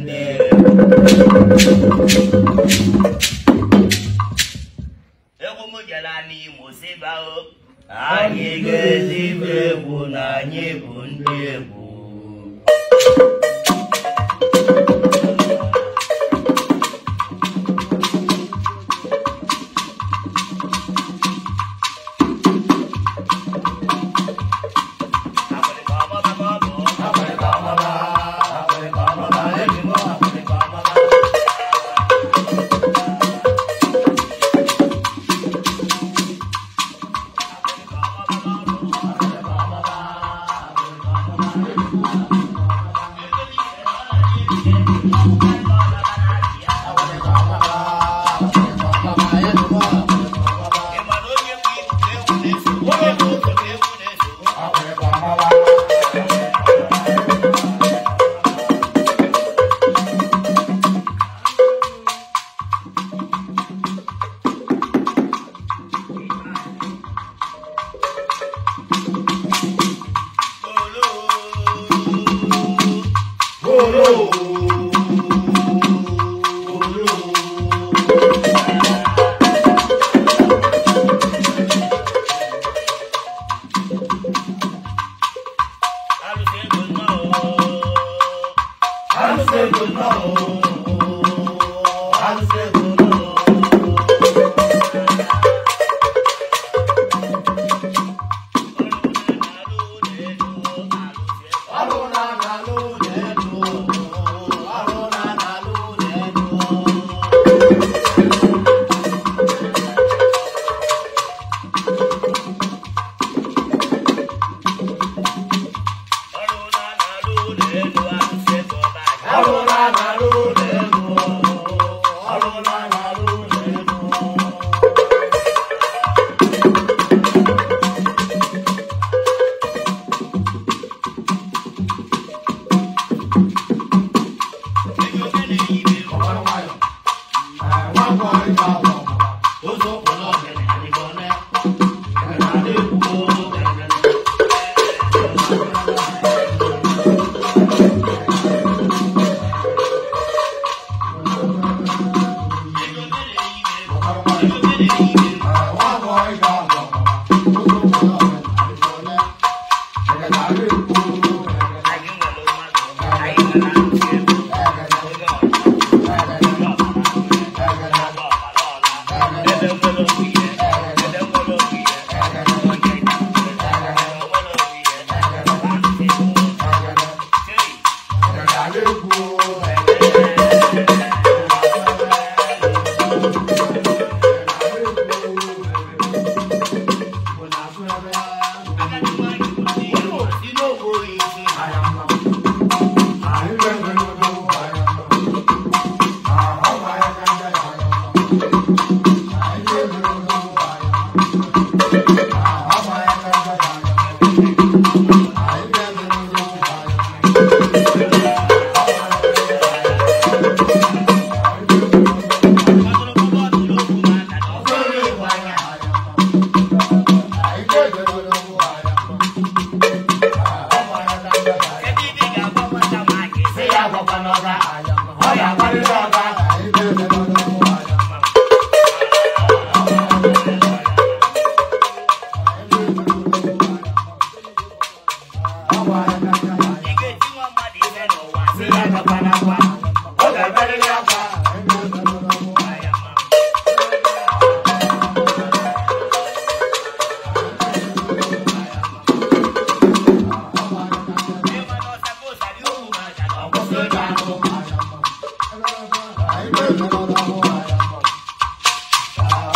nne egwu m gara n'Imo sibao anyị ga-ezigbo egwu na anyị bụ ndị egwu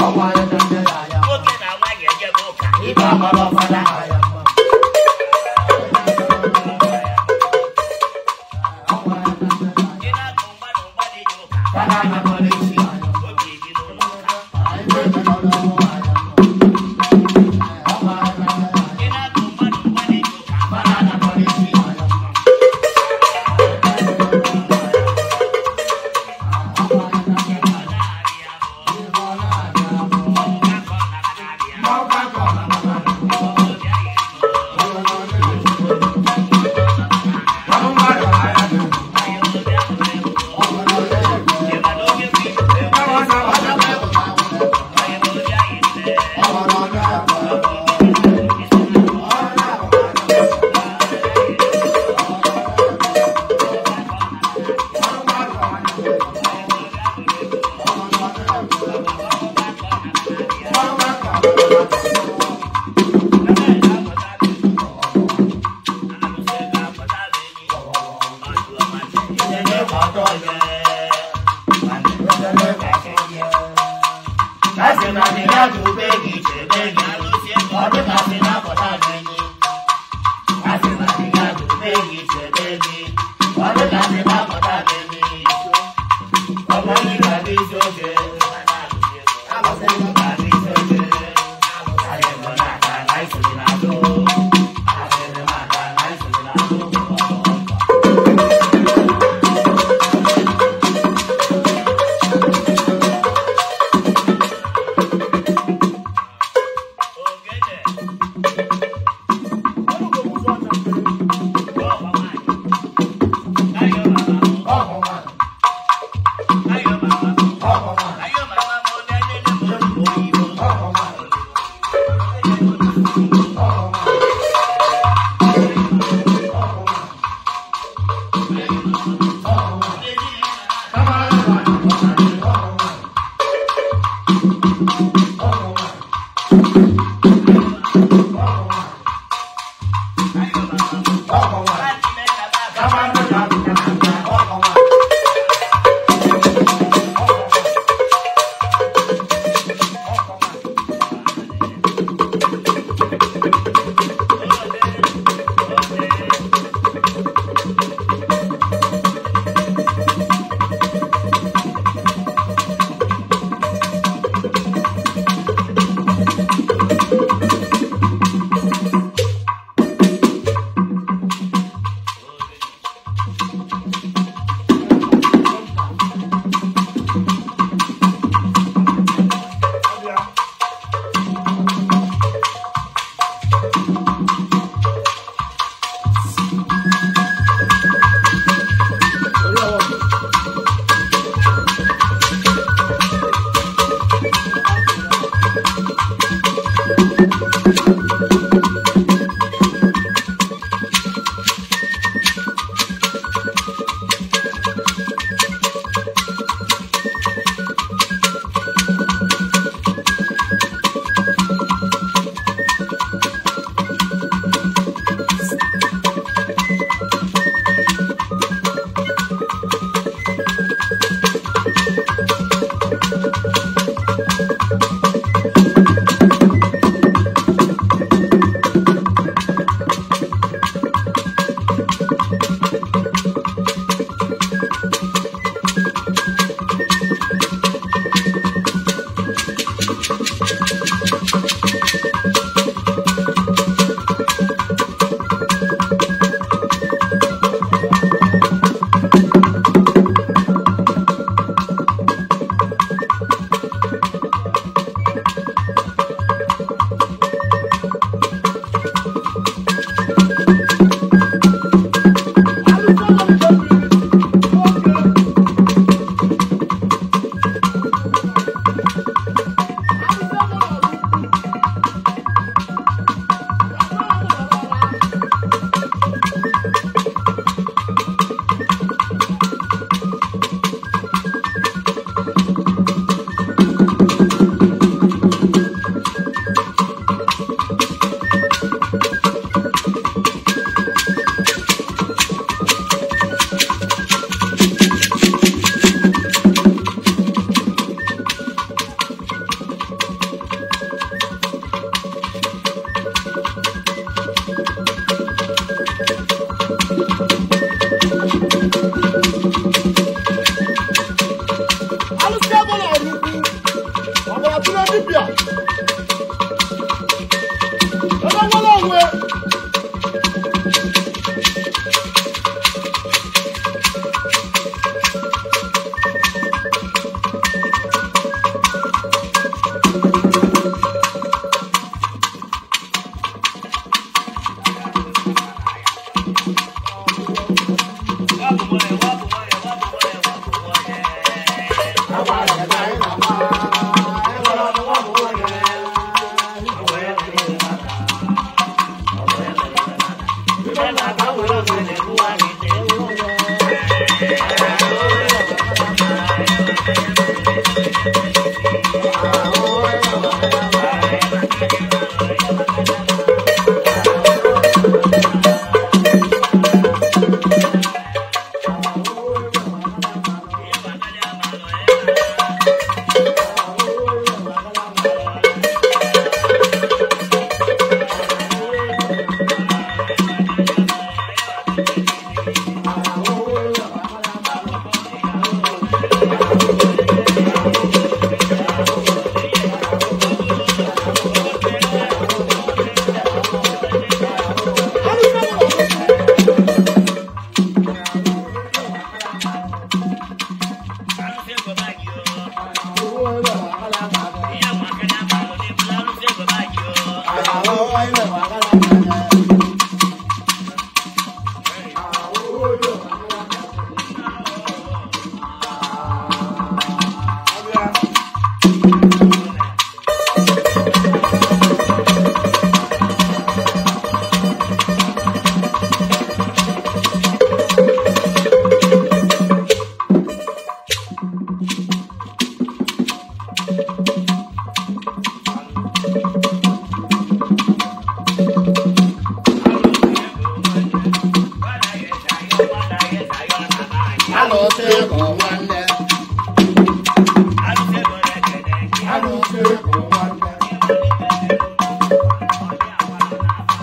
I'm ndị na ya. Nwoke na nwaanyị enyebe ụka. Ibe ọgbara ọfọdụ a ya.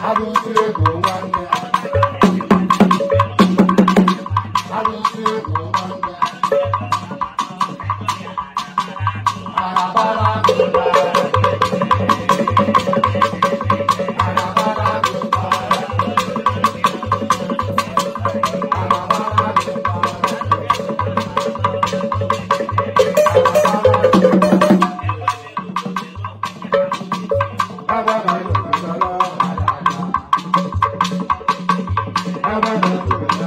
abụsị ego nwanne Thank you.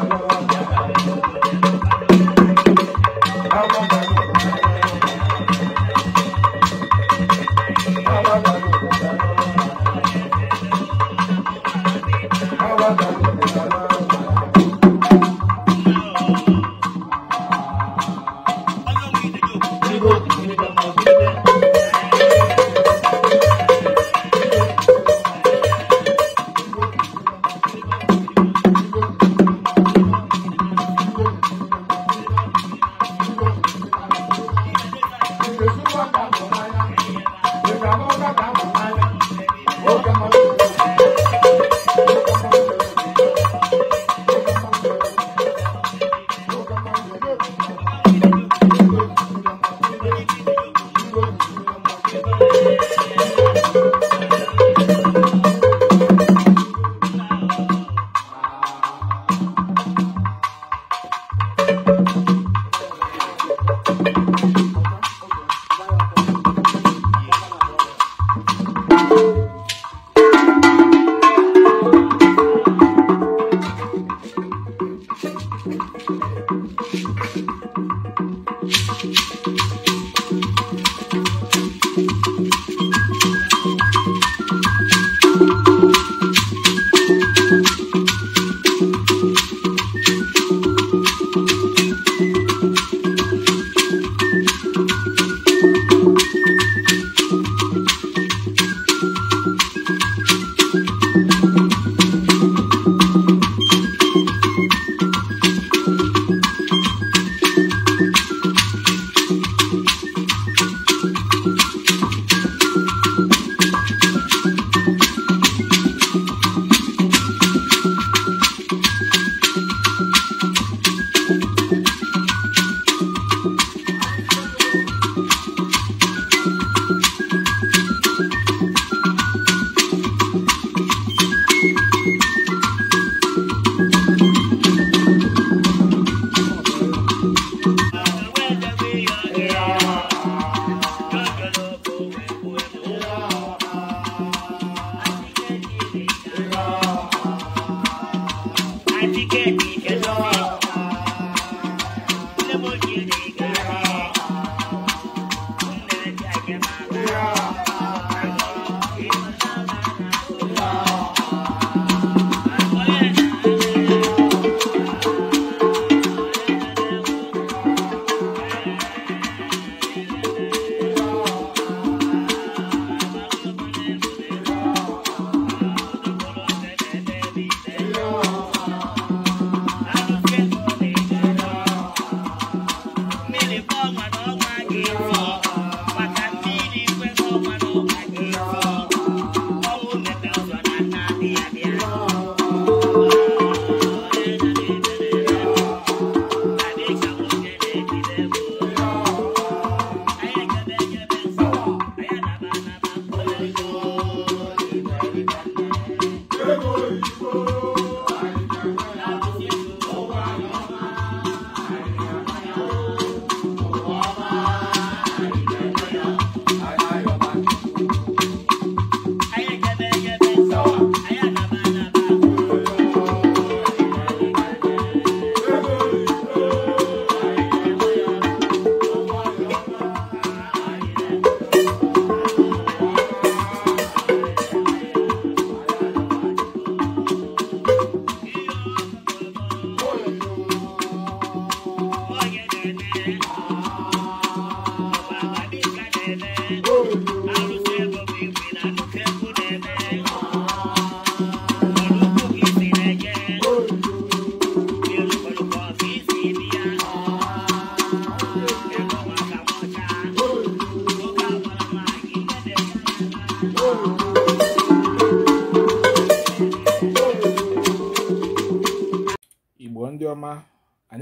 thank you